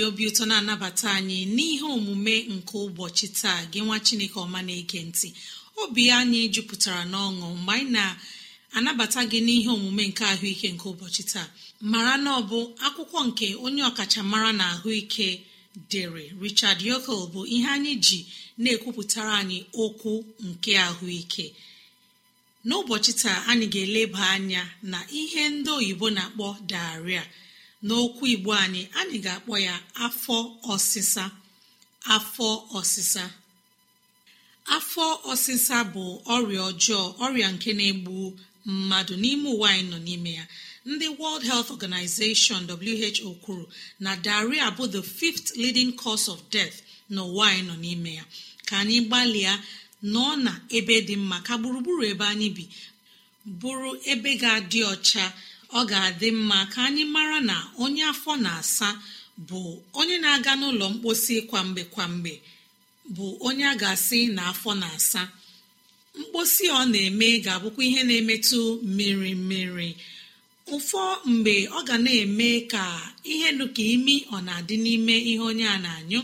ji obi ụtọ na-anabata anyị n'ihe omume nke ụbọchị taa gị nwa chineke ọma na-ege ntị obi anyị jupụtara n'ọṅụ mgbe anyị na-anabata gị n'ihe omume nke ahụike nke ụbọchị taa mara na ọ bụ akwụkwọ nke onye ọkachamara na ahụike dere richard yokel bụ ihe anyị ji na-ekwupụtara anyị okwu nke ahụike n'ụbọchị taa anyị ga-eleba anya na ihe ndị oyibo na-akpọ daria n'okwu igbo anyị anyị ga-akpọ ya afọ ọsịsa afọ ọsịsa afọ ọsịsa bụ ọrịa ọjọọ ọrịa nke na-egbu mmadụ n'ime ụwa anyị nọ n'ime ya ndị world health organization who kwuru na daria bụ the fifth leading cause of death n'ụwa anyị nọ n'ime ya ka anyị gbalịa nọ na ebe dị mma ka gburugburu ebe anyị bi bụrụ ebe ga-adị ọcha ọ ga-adị mma ka anyị mara na onye afọ na-asa bụ onye na-aga n'ụlọ mkposi kwamgbe kwamgbe bụ onye a ga-asị na afọ na-asa mkposi ọ na-eme ga-abụkwa ihe na-emetụ mmiri mmiri ụfọ mgbe ọ ga na-eme ka ihe n'ụka imi ọ na-adị n'ime ihe onye a na-anyụ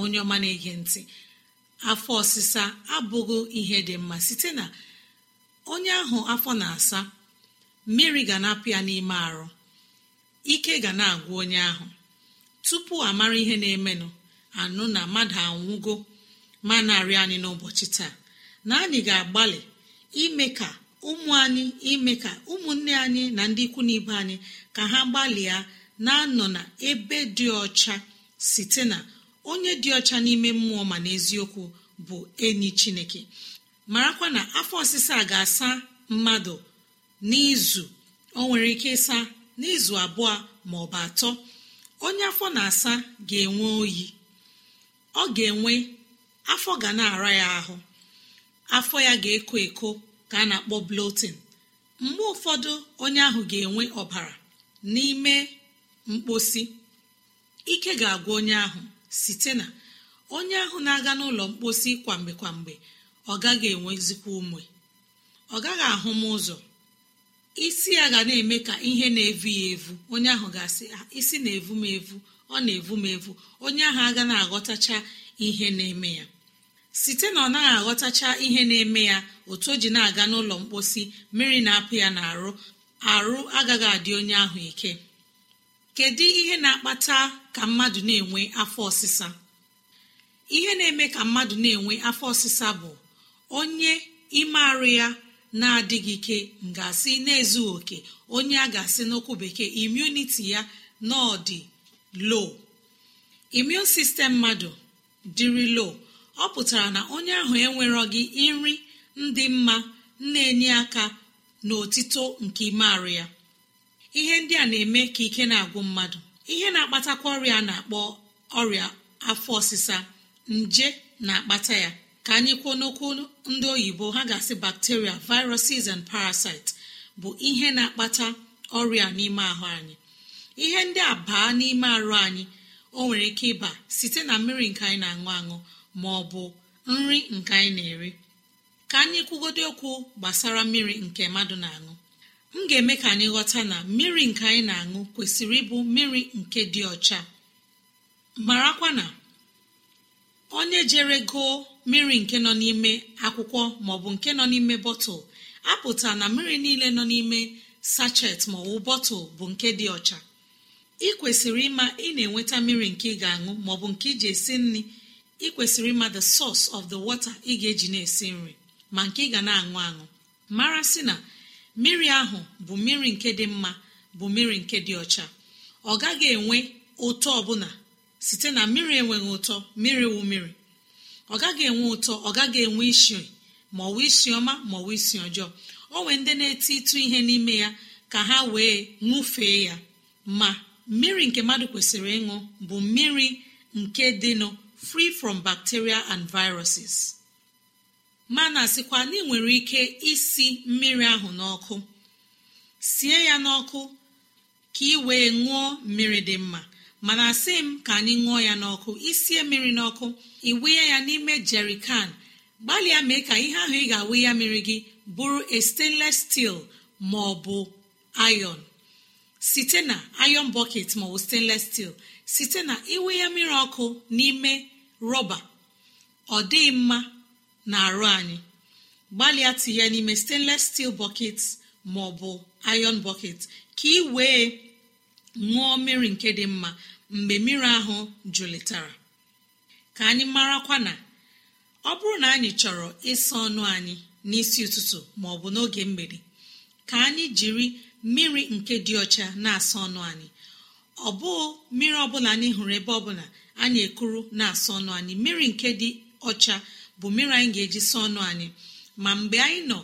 onye ọma na-ege ntị afọ ọsịsa abụghị ihe dị mma site na onye ahụ afọ na-asa mmiri ga na-apụ ya n'ime arụ ike ga na-agwụ onye ahụ tupu amara ihe na-emenụ anụ na mmadụ anwụgo ma narị anyị n'ụbọchị taa na anyị ga-agbalị ime ka ụmụ anyị ime ka ụmụnne anyị na ndị ikwu na ibe anyị ka ha gbalịa na-anọ na ebe dị ọcha site na onye dị ọcha n'ime mmụọ ma n'eziokwu bụ enyi chineke marakwa na afọ ọsịsa ga-asa mmadụ n'izu o nwere ike ịsa n'izu abụọ bụ atọ onye afọ na-asa ga-enwe oyi ọ ga-enwe afọ ga na-ara ya ahụ afọ ya ga-eko eko ka a na-akpọ blotin mgbe ụfọdụ onye ahụ ga-enwe ọbara n'ime mkposi ike ga-agwa onye ahụ site na onye ahụ na-aga n'ụlọ mkposi kwamgbe kwamgbe ọ gaghị enwezikwa ume ọ gaghị ahụ m ụzọ isi ya ga na-eme ka ihe na-evu ya evu onye ahụ ga-asị ah, isi na-evu m evu ọ na-evu m evu onye ahụ aga na-aghọtacha ihe na-eme ya site na ọ naghị aghọtacha ihe na-eme ya otu o ji na-aga n'ụlọ mposi mmiri na-apụ ya n'arụ arụ agaghị adị onye ahụ ike kedu ihe na-akpata ka mmadụ na-enwe afọ ọsịsa ihe na-eme ka mmadụ na-enwe afọ ọsịsa bụ onye ime arụ ya na-adịghị ike ngasị na-ezughị oke onye a ga-asị n'okwu bekee imuniti ya n'ọdị lo imun sistem mmadụ dịrị lo ọ pụtara na onye ahụ enwerọ gị nri ndị mma na-enye aka n'otito nke ime ya ihe ndị a na-eme ka ike na-agwụ mmadụ ihe na-akpatakwa ọrịa na-akpọ ọrịa afọ ọsịsa nje na-akpata ya ka anyị kwuo n'okwu ndị oyibo ha ga-asị bacteria viruses and parasites bụ ihe na-akpata ọrịa n'ime ahụ anyị ihe ndị a baa n'ime arụ anyị o nwere ike ịba site na mmiri nke anyị na-aṅụ aṅụ ma ọ bụ nri nke anyị na-eri ka anyị kwugodo okwu gbasara mmiri nke mmadụ na-aṅụ m ga-eme ka anyị ghọta na mmiri nke anyị na-aṅụ kwesịrị ịbụ mmiri nke dị ọcha marakwa na onye jere goo mmiri nke nọ n'ime akwụkwọ maọbụ nke nọ n'ime bọtụl apụta na mmiri niile nọ n'ime sachet maọbụ bọtụl bụ nke dị ọcha ị kwesịrị ịma ị na-enweta mmiri nke ị ga-aṅụ maọbụ nke iji esi nri ị kwesịrị ịma the source of the water ị ga-eji na-esi nri ma nke ị ga na-aṅụ aṅụ mara sị na mmiri ahụ bụ mmiri nke dị mma bụ mmiri nke dị ọcha ọ gaghị enwe ụtọ ọbụla site na mmiri enweghị ụtọ mmiri wụ mmiri ọ gaghị enwe ụtọ ọ gaghị enwe isi ma ọ wee isi ọma ma wee isi ọjọọ o nwee ndị na-eti ịtụ ihe n'ime ya ka ha wee ṅụfee ya ma mmiri nke mmadụ kwesịrị ịṅụ bụ mmiri nke dịnụ free from bacteria and viruses ma na asịkwa na ị nwere ike isi mmiri ahụ n'ọkụ sie ya n'ọkụ ka ị wee ṅụọ mmiri dị mma mana asị m ka anyị ṅụọ ya n'ọkụ isie mmiri n'ọkụ iwunye ya n'ime jerikan gbalịa mee ka ihe ahụ ị ga-awụ ya mmiri gị bụrụ a stainless steel ma ọ bụ iron site na iron bucket maọbụ stainless steel site na iwe ya mmiri ọkụ n'ime rọba ọ dịghị mma na arụ anyị gbalịa tinye n'ime stainless steel bucket maọbụ iron bucket ka ị wee ṅụọ mmiri nke dị mma mgbe mmiri ahụ jụlitara ka anyị marakwa na ọ bụrụ na anyị chọrọ ịsa ọnụ anyị n'isi ụtụtụ ma ọ bụ n'oge mgbede ka anyị jiri mmiri nke dị ọcha na-asa ọnụ anyị ọ bụghị mmiri ọbụla anyị hụrụ ebe ọbụla anyị ekuru na-asa ọnụ anyị mmiri nke dị ọcha bụ mmiri anyị ga-eji sa ọnụ anyị ma mgbe anyị nọ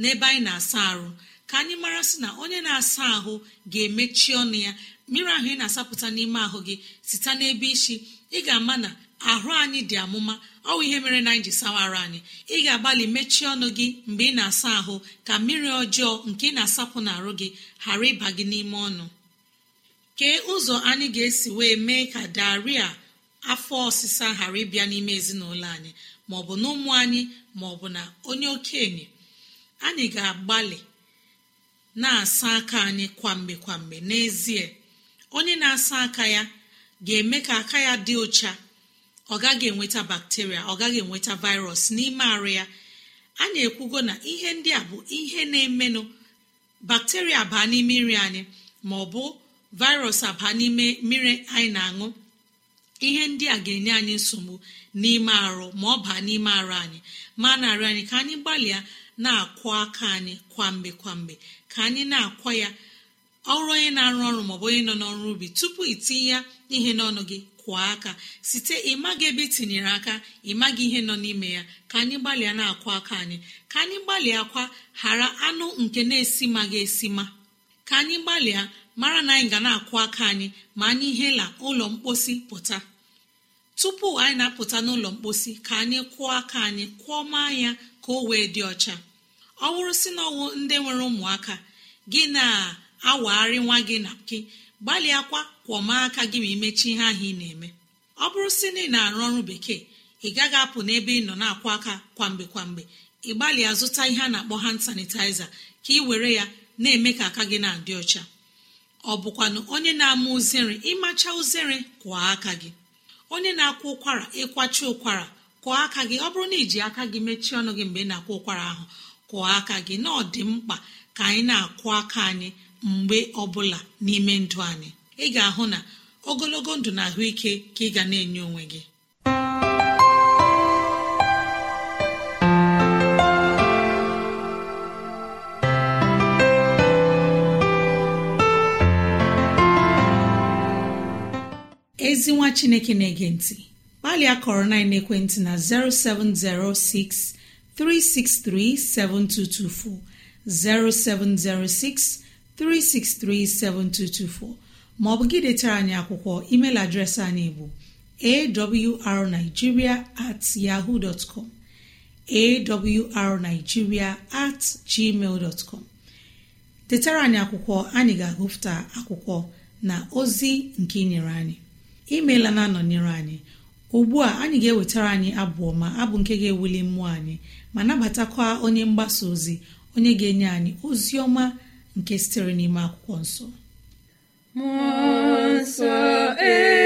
n'ebe anyị na-asa arụ ka anyị mara sị na onye na-asa ahụ ga-emechi ọnụ ya mmiri ahụ ị na-asapụta n'ime ahụ gị site n'ebe isi ị ga-ama na ahụ anyị dị amụma ọwụ ihe mere na anyị ji sawara anyị ị ga-agbalị mechie ọnụ gị mgbe ị na-asa ahụ ka mmiri ọjọọ nke ị na-asapụ n'arụ gị ghara ịba gị n'ime ọnụ kee ụzọ anyị ga-esi wee mee ka daria afọ ọsịsa ghara ịbịa n'ime ezinụlọ anyị maọbụ na ụmụ anyị maọbụ na onye okenye anyị ga-agbalị na-asa aka anyị kwamgbe kwamgbe n'ezie onye na-asa aka ya ga-eme ka aka ya dị ụcha ọ gaghị enweta bakteria ọ gaghị enweta virus n'ime arụ ya anyị ekwugo na ihe ndị a bụ ihe na-emenụ bakteria baa n'ime nri anyị ma ọ bụ virus abaa n'ime mmiri anyị na-aṅụ ihe ndị a ga-enye anyị nsogbu n'ime arụ ma ọ baa n'ime arụ anyị ma narị anyị ka anyị gbalịa na akwụ aka anyị kwamgbe kwamgbe ka anyị na-akwa ya ọrụ onye na-arụ ọrụ maọbụ onye nọ n'ọrụ ubi tupu itinye ya ihe n'ọnụ gị kwụọ aka site ịmaghị ebe itinyere tinyere aka ịmaga ihe nọ n'ime ya ka anyị gbalịa na-akwụ aka anyị ka anyị gbalịa akwa ghara anụ nke na-esi ma ga esi ka anyị gbalịa mara na anyị ga na-akwụ aka anyị ma anyị hela ụlọ mkposi pụta tupu anyị na-apụta n'ụlọ mkposi ka anyị kwụọ aka anyị kwụọ maa ya ka o wee dị ọcha ọ bụrụ si na ndị nwere ụmụaka gị na awagharị nwa gị na gị gbalịakwa kwọma aka gị ma imechi ihe ahụ ị na-eme ọ bụrụ si na ị na-arụ ọrụ bekee ị gaghị apụ n'ebe ị nọ na akwa aka kwamgbe kwamgbe ị gbalịa zụta ihe a na-akpọ hand sanitizer ka ị were ya na-eme ka aka gị na-adị ọcha ọ bụkwanụ onye na-ama uzere ịmacha uzere kwụọ aka gị onye na-akwụ ụkwara ịkwachi ụkwara kụọ aka gị ọ bụrụ na iji aka gị mechie ọnụ gị mgbe ị na-akwụ ụkwara ahụ kwụọ aka gị na ọ dị mkpa ka anyị na-akwụ aka anyị mgbe ọbụla n'ime ndụ anyị ị ga-ahụ na ogologo ndụ na ahụike ka ị ga na-enye onwe gị ezi nwa chineke na-ege ntị gbalịa kọrọ na ekwentị na 07063637224 0706 3637224 maọbụ gị detara anyị akwụkwọ email adreesị anyị bụ awrnigeria at yahoo dot com awrnigeria at gmail dot com detara anyị akwụkwọ anyị ga-agụpụta akwụkwọ na ozi nke nyere anyị imeela na-anọnyere anyị ugbu a anyị ga-ewetara anyị abụọ ma abụ nke ga-ewuli mmụọ anyị ma nabatakwa onye mgbasa ozi onye ga-enye anyị ozi ọma nke sitere n'ime akwụkwọ nsọ nsọ ee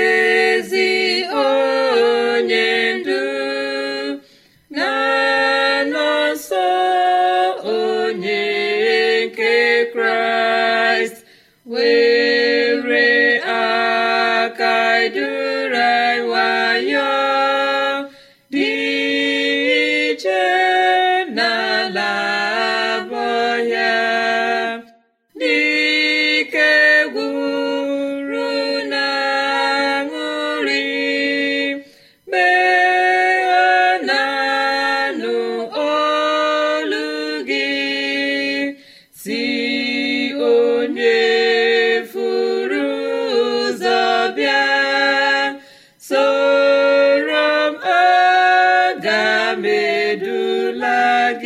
la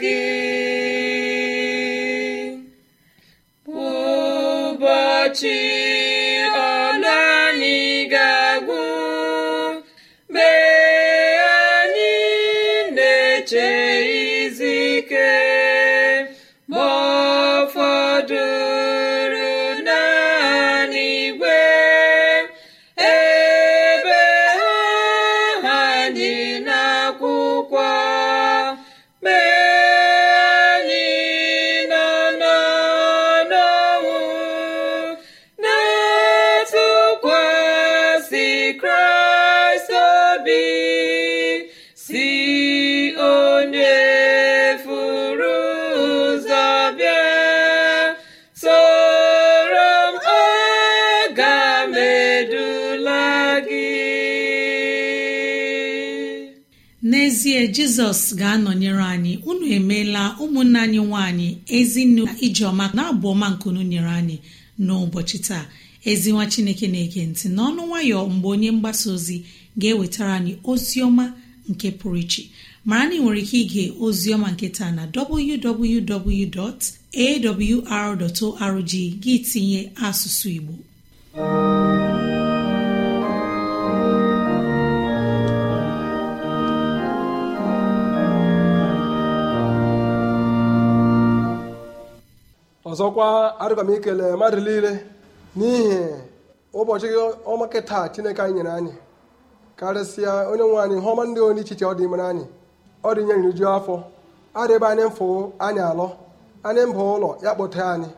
gị n'ezie jizọs ga-anọnyere anyị unu emeela ụmụnna anyị nwaanyị ezinne ijeọma na-abụ ọma nkunu nyere anyị n'ụbọchị taa ezi nwa chineke na-ege ntị n'ọnụ nwayọ mgbe onye mgbasa ozi ga-ewetara anyị ozi ọma nke pụrụ iche mara na ị nwere ike ige ozi ọma nke taa na www.awr.org gị tinye asụsụ igbo ọzọkwa arịba m ikele eh, mmadụ niile n'ihi ụbọchị ọmaka taa chineke anyị nyere anyị karịsịa onye nwe anyị ihe ọma ndị onye ichiche ọ dị mere anyị ọ dị nyere nju afọ adịbe anyị mfụ anyị alọ anyị mba ụlọ ya kpọte anyị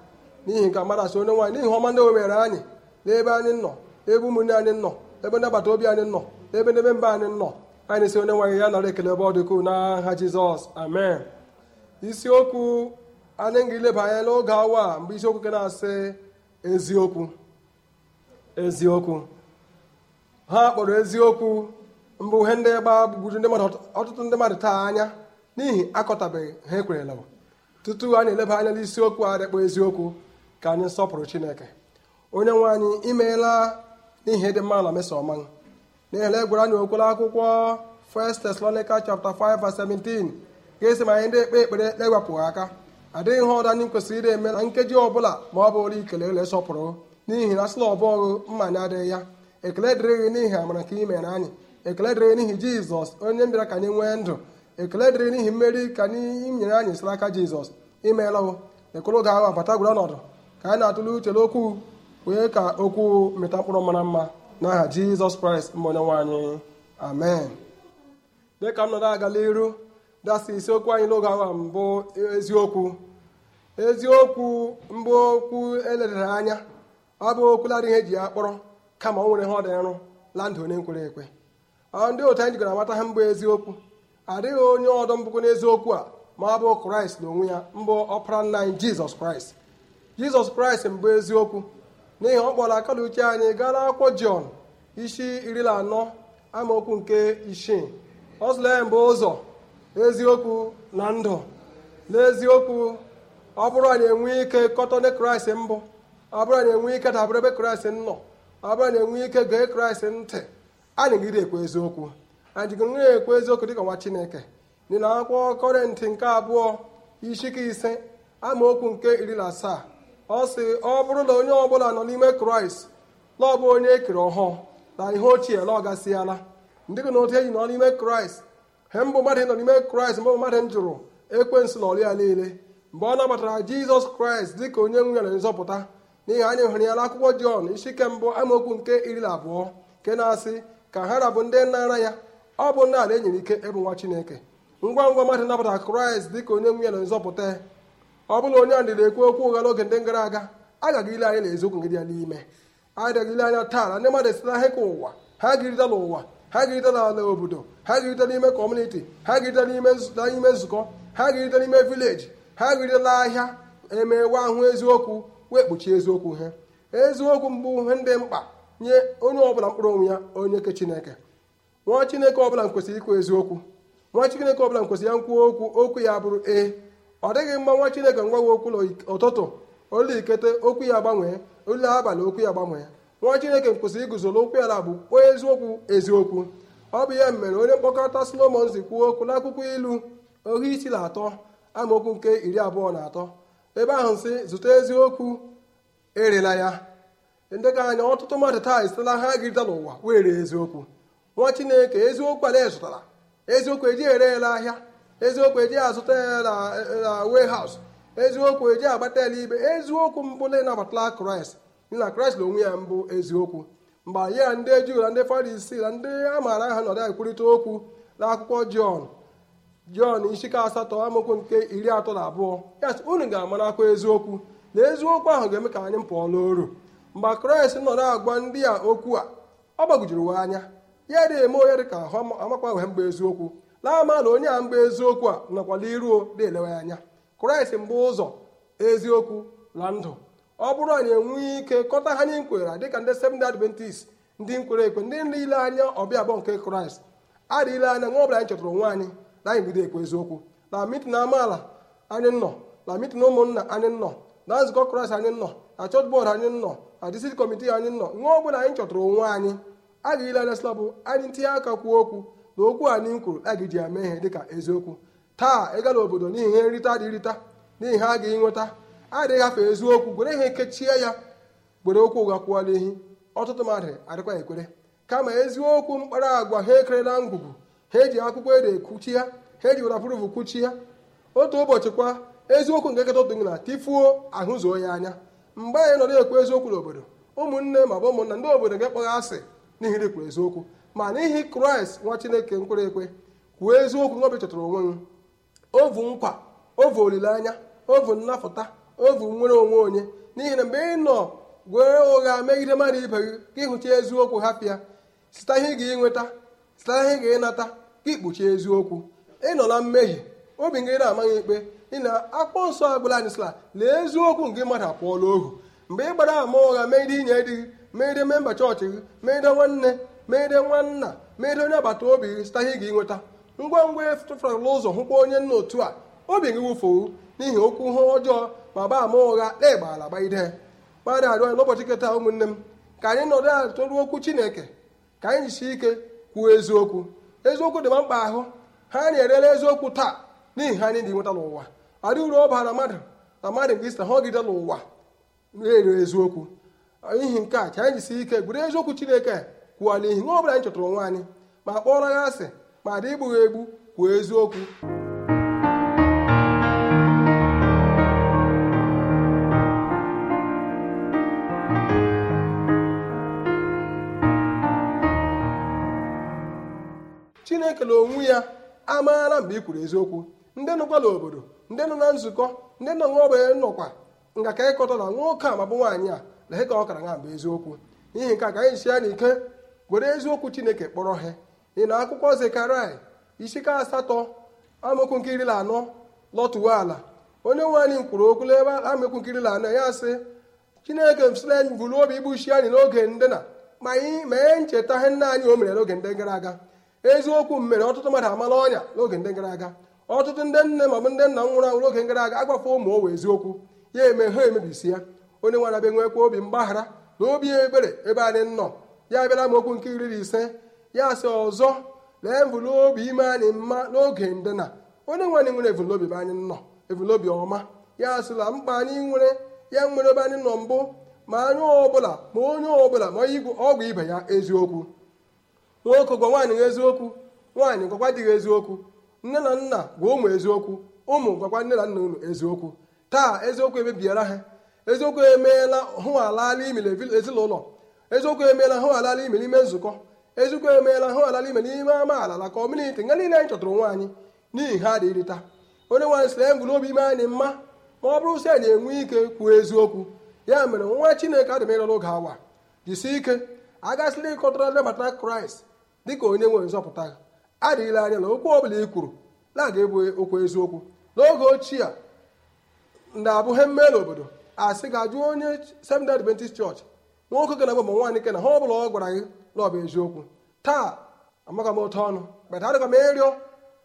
n'ihi nke mmadụ asị onye nwaanyị n'ihi ọma ndị o mere anyị n'ebe anyị nọ ebe ụmụnne anyị nọ ebe ndị obi anyị nọ ebe n'ebe mba anyị nọ anyị si onye nwaanyị ya nara ekele ebe ọ dịkụ n'aha jizọs amen isiokwu anyị ga-eleba anya n'oge awa mgbe isiokwu nke na-asị eziokwu eziokwu ha kpọrọ eziokwu mbụ ihe ndị gbagburu ndị mmadụ ọtụtụ ndị mmadụ taa anya n'ihi akọtabeghị ha ekwerela tutu anyị eleba anya n'isiokwu a dịkpọ eziokwu ka anyị sọpụrụ chineke onye nwe anyị imeela n'ihi ịdị mma na meso ọma n'ihi na anyị okwere akwụkwọ 1 Thessalonica chapter 5 verse 17 ga-esi ma anyị ndị ekpe ekpere na-ewepụghị aka adịghị ihe ọdụ anyị kwesịrị ịre eme na nkeji ọbụla ma ọ bụrụ ikele ele sọpụrụ n'ihi na sịla ọbọghụ mma na adịghị ya ekele dịrị n'ihi amara ka ị anyị ekele dịrị n'ihi jizọs onye mbịara ka anyị nwee ndụ ekele dịrị n'ihi mmeri ka anyị nyere anyị siri aka jizọs imeela o ga ahụ abata gwere ọnọdụ ka anyị na-atụle uche n'okwu wee ka okwu mịta mkpụrụ mara mma n'aha jizọs kraịst mbụ onye nwe amen dịka m nọrọ agala iru dasị isiokwu anyị n'oge awa mbụ eziokwu eziokwu mbụ okwu eledara anya ọ bụ okwuladị ihe eji ya kpọrọ kama o nwere ha ọ nrụ la ndụ onye nkwere ekwe ndị otu anyị jikọrọ amata ha mbụ eziokwu adịghị onye ọdọ mbụkwu n'eziokwu a ma ọ bụ kraịst na onwe ya mbụ ọpara nna anyị jizọs kraịst jizọs kraịst mbụ eziokwu n'ihi ọ kpọrọ aka na uche anyị gaa n'akwụkwọ jọn isi iri na anọ amaokwu nke isii ọ sụla ya mbụ ụzọ eziokwu na ndụ n'eziokwu ọ bụrụ na enwe ike kọtọne kraịst mbụ ọ bụrụ na enwe ike dabere ebe kraịst nọ ọ bụrụ na enwe ike gee kraịst ntị anyị gide ekwe eziokwu anyị jigoro ekwe eziokwu dịka nwa chineke dị na akwụkwọ kọrịntị nke abụọ ishike ise amaokwu nke iri na asaa ọ sị ọ bụrụ na onye ọbụla nọ n'ime kraịst na bụ onye ekere ọhụụ na ihe ochie na ọ gasịala ndị gị na otu eji nọ n'ime kraịst he mbụ mmadụ nọ n'ime kraịst mbụ mmadụ m jụrụ ekwensu na ya niile mgbe ọ nabatara jizọs kraịst dị ka onye nwunye na nzọpụta n'ihi anyị hụrụ ya n'akwụkwọ jọn isi ike mbụ amaokwu nke iri na abụọ nke na-asị ka ha rabụ ndị nara ya ọ bụ nna ala enyere ike ịbụ nwa chineke ngwa ngwa mmadụ nabatara kraịst dị ka onye nwunye na nzọpụta ọ bụla onye na dịrị ekwu okwu ụgha n'oge ndị gara aga agaghị ile anya na eziokwu gị dị ya n'ime adịghị ile anya taa na ndị mmadụ esila ahịka ụwa ha girida n'ụwa ha ga-erite n'ala obodo ha ga-erite n'ime kọmuniti ha ga-erite n'ime nzukọ ha ga-erite n'ime vileji ha ga-eritela ahịa emewe ahụ eziokwu wee kpuchie eziokwu ha eziokwu mbụ he ndị mkpa nye onye ọbụla mkpụrụ onwe ya onye ke chineke nwa chineke ọbụla kwesịrị ịkụ eziokwu nwa chineke ọbụla kwesị ya nkwuo okwu okwu ya bụrụ ee ọ dịghị mma nwa chineke ngwawe okwu n'ụtụtụ olu ikete okwu ya gbanwee olu abalị okwu ya gbanwee nwa chineke kwụsịrị iguzo n'okwu ya bụ onye eziokwu eziokwu ọ bụ ihe mere onye mkpọkọta solomon kwuo okwu n'akwụkwọ ilu ohu isi na atọ amaokwu nke iri abụọ na atọ ebe ahụ si zụta eziokwu erela ya ndị ka anya ọtụtụ mmadụ taa esitela ha girịta n'ụwa were eziokwu nwa chineke eziokwu ala zụtara eziokwu eji ere ele ahịa eziokwu eji azụta ya na haus eziokwu eji agbata ele ibe eziokwu mbụ na ịnabatala kraịst na kraịst na onwe ya mbụ eziokwu mgbe anyị ya ndị juu na ndị farisii na ndị a maara aha nọrọ ekwurịta okwu n'akwụkwọ jọn jọn isi asatọ amaokwu nke iri atọ na abụọ ya sị unu ga-amarakwa eziokwu na eziokwu ahụ ga-eme ka anyị pụọ n'oru mgbe kraịst na agwa ndị a okwu a ọ gbagojiri anya ya dị eme onye dị ka ahụ amakwaghị mgbe eziokwu na-ama na onye a mgbe eziokwu a nọkwala iruo dị elewe anya kraịst mbụ ụzọ eziokwu na ndụ ọ bụrụ anyị enweghị ike kọta ha nye nkwera dịka ndị Seventh Adventist ndị nkwere ekwe ndị nile anya ọbịa abụọ nke kraịst adịghịle anya nwa ọbụla anyị chọtara onwe anyị na anyị bido ekwe eziokwu na mitin amaala anyị nọ na mitin ụmụnna anyị nọ na nzukọ kraịst anyị nọ na chọt bọọdụ anyị nọ na disit kọmitii anyị nọ nwa ọbụla anyị chọtara onwe anyị adịghịle anya sịla bụ anyị ntinye aka kwuo okwu na okwu anyị nkwuru a ga-eji ya mee ihe dịka eziokwu taa ịga n'obodo n'ihi ihe nrita adịghị rita n'ihi ha agaghị nweta adịghị afọ eziokwu gwere ha ekechie ya gwere okwu ụgha kwụọla ehi ọtụtụ mmadụ adịkwa ekwere kama eziokwu mkpara agwa ha ekerela ngwugwu ha eji akwụkwọ ede ekwuchi ya ha eji werapuruvu kwuchi ya otu ụbọchị kwa eziokwu nke nketa otu na tifuo ahụzuo ya anya mgbe anyị nọrọ ekwu eziokwu n'obodo ụmụnne ma bụ ụmụnna ndị obodo ga-akpọghị asị n'ihi ikwuru eziokwu ma n'ihi kraịst nwa chineke nkwere ekwe kwuo eziokwu nwa obi chọtara onwe m ovu nkwa ovu olileanya ovu nnapụta ovu nwere onwe onye n'ihi na mgbe ị nọ gwere ụgha megide mmadụ ibe gị ka ịhụcha eziokwu hapịa site ihe ga-enweta site ihe ị ga-enata ka ikpuchi eziokwu ị nọ na mmehie obi gị na-amaghị ikpe ị na-akpọ nsọ agbụla anyị sịla lee eziokwu nke mmadụ akpọọla ohu mgbe ị gbara ama ụgha megide inye di gị megide memba chọọchị gị megide nwanne megide nwanna megide onye agbata obi gị sita ihe ị ga-enweta ngwa ngwa e tụfụrụla ụzọ hụkwa onye nna otu a obi gị wụfuo n'ihi okwu ha ọjọọ ma gbaa ama ụgha na ala gbagide mmadụ arịọ n'ụbọchị nketa ụmụnne m ka anyị nọdụ ala tụrụ okwu chineke ka anyị jisi ike kwuo eziokwu eziokwu dị ma mkpa ahụ ha na-erela eziokwu taa n'ihi ha anyị dị nweta n'ụwa ọ dị uru ọ na mmadụ na mmadụ nke isi ha n'ụwa na-ere eziokwu n'ihi nke a ka anyị jisi ike gwere eziokwu chineke kwuo n'ihi nwa ọ anyị chọtara onwe anyị ma kpọrọ ya asị ma dị igbughị egbu kwuo eziokwu e na onwe ya amaara mgbe ị kwuru eziokwu ndị nọkwa n'obodo ndị nọ na nzukọ ndị nọ n'ọgbe nọkwa nga ka ịkọta na nwoke a mabụ nwaanyị a lehe ka ọ kara na mgbe eziokwu n'ihi nke a ka anyị si ya n'ike were eziokwu chineke kpọrọ ha ị na akwụkwọ zekarai isika asatọ amaokwu anọ lọtụwa ala onye nwe anyị kwuru okwu n'ebe amaokwu nke anọ ya sị chineke sila anyị buru obi igbuchi anyị n'oge ndị na ma anyị mee ncheta ihe nna anyị o mere n'oge ndị gara aga eziokwu mere ọtụtụ mmadụ amala ọnya n'oge ndị gara aga ọtụtụ ndị nne ma ọ bụ ndị nna nwụrụ anwụ n'oge gara aga agbafe ụmụ owe eziokwu ya eme ha emebisi ya onye nwere abịa nwekwa obi mgbaghara na obi ebere ebe anyị nọ ya bịara m okwu nke iri na ise ya asị ọzọ lee mvụlobi ime anyị mma n'oge ndịna onye nwanyị nwere evolobi ebe anyị nọ evolobi ọma ya sịla mkpa anyị nwere ya nwere ebe anyị nọ mbụ ma anyị ọbụla ma onye ọbụla ma ọgwụ ibe ya eziokwu nwoke gwa nwaanyị na eziokwu nwaanyị gwakwa dịghị eziokwu nne na nna gwa ụmụ eziokwu ụmụ gwakwa nne na nna unu eziokwu taa eziokwu emebiara ha eziokwu emeela hụ alala imele ezinụlọ eziokwu emeela hụ alala imele ime nzukọ eziokwu emeela hụ alala imele ime amaala na kọmuniti nga niile anyị chọtụrụ nwaanyị n'ihi ha adịghị taa onye nwaanyị sị na e obi ime anyị mma ma ọ bụrụ si anyị enwe ike kwuo eziokwu ya mere nwa chineke adịmịrọ n'oge awa ike agasịla ịkọtara ndị bata kraịst dịka onye nwere nzọpụta ha adịghịla anya na okwu ọbụla ị kwuru na-aga ebu okwu eziokwu n'oge ochie ndị na-abụ he mmee n'obodo asị ga-ajụ onye Seventh-day Adventist Church nwoke ke na bụ ma nwaanyị ke na ha bụla ọ gwara gị na ọ bụ eziokwu taa amaka m otu ọnụ kpeta adịkwa m ịrịọ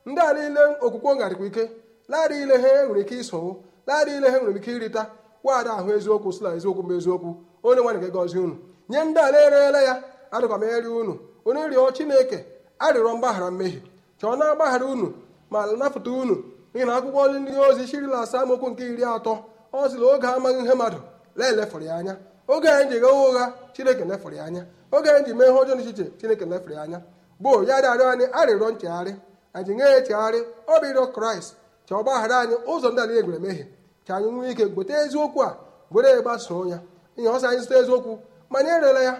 ndị a niile okwukwe ngarịkwa ike naadị ile ha enwere ike isowo na ile ha nwere ike irita nwaada ahụ eziokwu sila eziokwu mba eziokwu onye nwaanyị ga-egozi unu nye ndị a na-erela ya adịgha m ịrịọ unu onye rịọ chineke arịrọ mgbaghara mmehie chọọ na agbaghara unu ma napụta unu n'ihi na akwụkwọ ndị ozi shirila asaa amaokwu nke iri atọ ọ sịla oge amaghị ihe mmadụ laelefụrụ ya anya oge anyị ji ghewa ụgha chineke lefụrụ ya anya oge anyị ji mee ihe ọjọọ n'echiche chineke lefụrụ ya anya gboo ya rịarịọ anyị arịrịọ nchegharị anyị nye ya echegharị ọ bụ ịrịọ kraịst chọọ gbaghara anyị ụzọ ndị anyị egwere mehie ka anyị nwee ike gote eziokwu a gwere ya gbasoo ya ihe ọsọ anyị zụta eziokwu ma anyị erela ya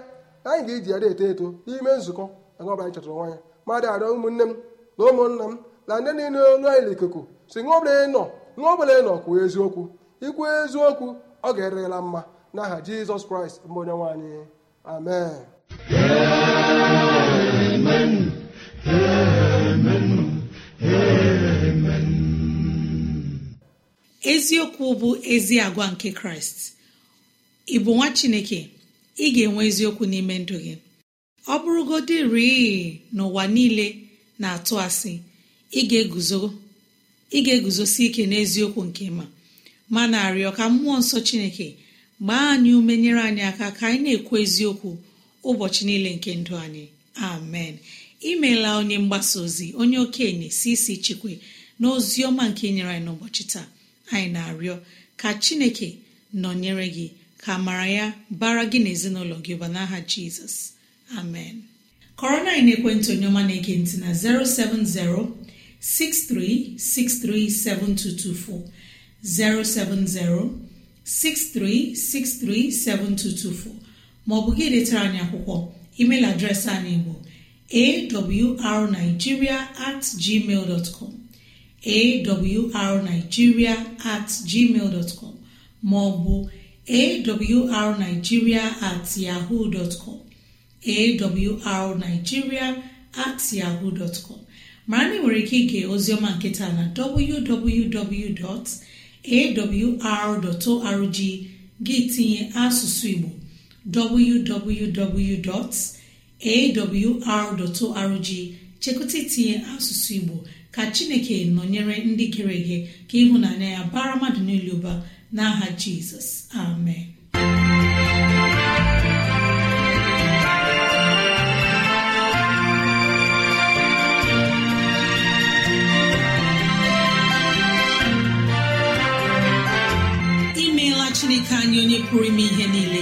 anyị ga-eji ya eto eto n'ime nzukọ anyị ọbụla anyị chọtara nwanya mmadụ arịọ ụmụnne m na ụmụnna m na ndị niile olu anyị n'ikuku si ṅụọ ọbụla nọ ṅụọ ọbụla nọ kwuo eziokwu ikwu eziokwu ọ ga-erela mma n'aha jizọs kraịst mbụ onye nwaanyị amen eziokwu bụ ezi agwa nke kraịst ị bụ nwa chineke ị ga-enwe eziokwu n'ime ndụ gị ọ bụrụgodị rii n'ụwa niile na-atụ asị ị ga-eguzosi ike n'eziokwu nke ma ma na-arịọ ka mmụọ nsọ chineke gbaa anyị ume nyere anyị aka ka anyị na-ekwu eziokwu ụbọchị niile nke ndụ anyị amen imeela onye mgbasa ozi onye okenye si isi chikwe na ozi ọma nke nyere anyị n'ụbọchị taa anyị na-arịọ ka chineke nọnyere gị ka amara ya bara gị na ezinụlọ gị ụba n'aha jizọs amen kọrọ na ekwentị onye ọma na-ege ntị na 07063637224 maọbụ gị detara anyị akwụkwọ email adreesị anyị bụ awrnigeria at gmail arigiria awrnigeria at gmail maọbụ arigiria at yahoo dotcom awrnigeria at yahoo dotcom mara na ị nwere ike ige ozioma nkịta na www.awr.org gị tinye asụsụ igbo www.awr.org chekụta itinye asụsụ igbo ka chineke nọnyere ndị gịrị ihe ka ịhụnanya ya bara mmadụ niile ụba n'aha jizọs amen imeela chineke anyị onye pụrụ ime ihe niile